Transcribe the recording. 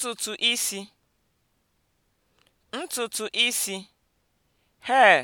ntutu isi ntutu isi hair